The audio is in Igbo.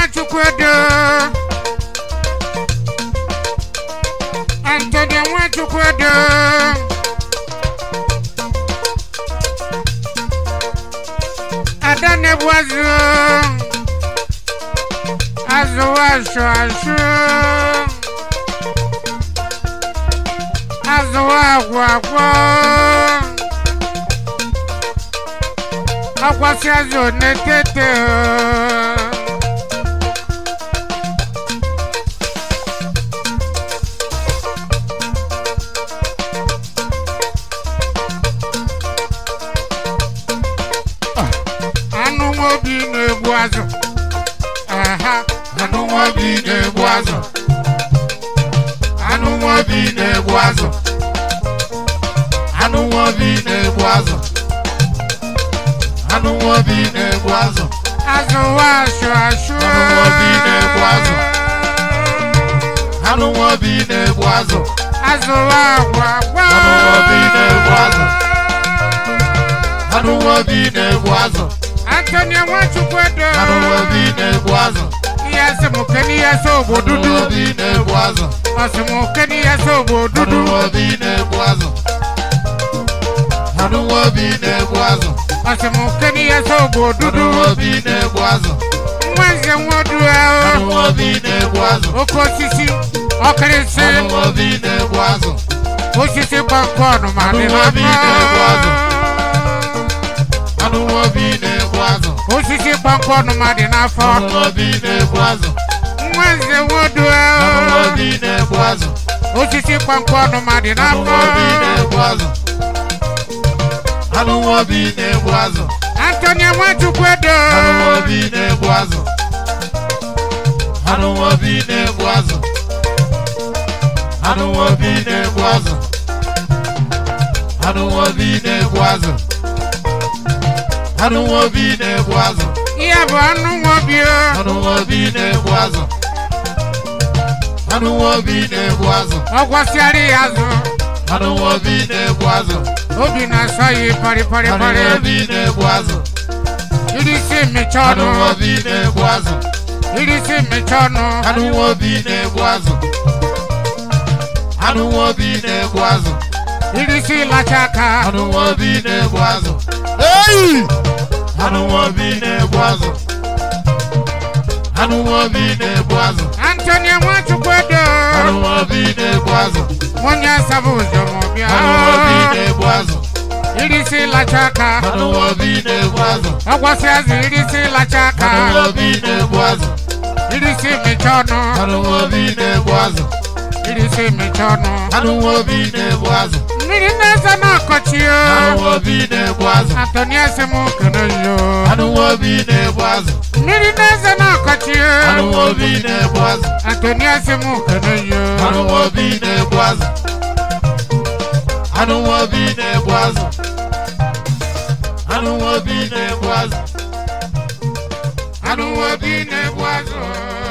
Nwachukwu Edo Anthony Nwachukwu Edo Adanebuazu Azụwa asụ asụ Azụwa agwọ agwọ Akwasị azụ na-etete ooo anụ nwa obi na-egbu azụ aha anụ nwa obi na-egbu azụ anụ nwa obi na-egbu azụ anụ nwa obi na-egbu azụ anụ nwa obi na-egbu azụ azụ nwa asụ asụ anụ nwa obi na-egbu azụ anụ nwa obi na-egbu azụ azụ nwa agwa anụwa bi na-egbu azụ antonia nwachukwu edo anụwa bi na-egbu azụ ihe asị m dudu anụwa bi na-egbu azụ ọsị m kene dudu anụwa bi na-egbu azụ anụwa bi na-egbu azụ ọsị m dudu anụwa bi na-egbu azụ nwa nze nwa odu ahụ anụwa bi na-egbu azụ oke osisi ọkịrịsị anụwa bi na-egbu azụ osisi gbakọ ọnụ ma osisi kpọmkpọnụ ma dị n'afọ nwa nwodo osisi kpọmkpọnụ ma dị n'afọ Anthony Nwachukwu edo obi na-egbu azụ anụ nwa obi na ebu azụ ihe bụ anụ nwa obi anụ nwa obi na ebu azụ anụ nwa obi na ebu azụ ọ gwasịara ya azụ anụ nwa obi na ebu azụ obi na-asọ ya parịparịparị anụ nwa obi na ebu azụ iri si mmecha ọnụ anụ nwa obi na ebu azụ iri si mmecha ọnụ anụ nwa obi na ebu azụ anụ nwa obi na ebu azụ iri si lacha aka anụ nwa obi na ebu azụ eyi Anụnwobi na-egbu azụ. Anụnwobi na-egbu azụ. Anthony Nwachukwu Edo. Anụnwobi na-egbu azụ. Nwunye na Irisi lacha aka. azụ. irisi lacha aka. na azụ. ọnụ. Anụnwobi na ọnụ. Anụnwobi na Esa no cochio. Anuobi ne boazo. Antonia se mo kanojo. Anuobi ne boazo. Niri ne se no cochio. Anuobi ne boazo. Antonia se mo kanojo. Anuobi ne boazo. Anuobi ne boazo. Anuobi ne boazo. Anuobi ne boazo.